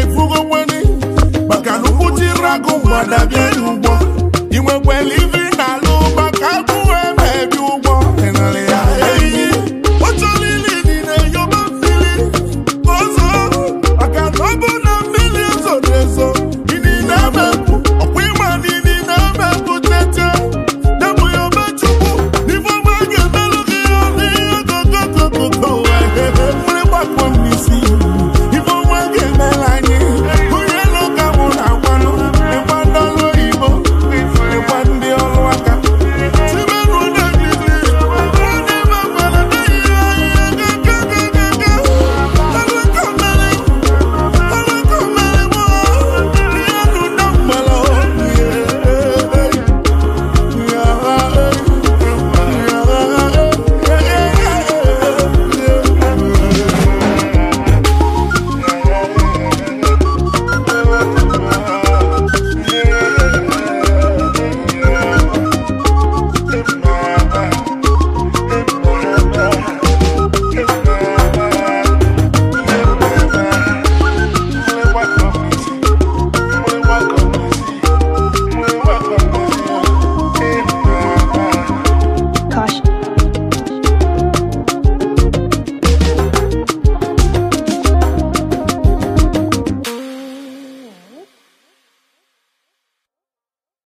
ifugo mweni maka na ụkwụ jiri agụ mmadụ n'ugbo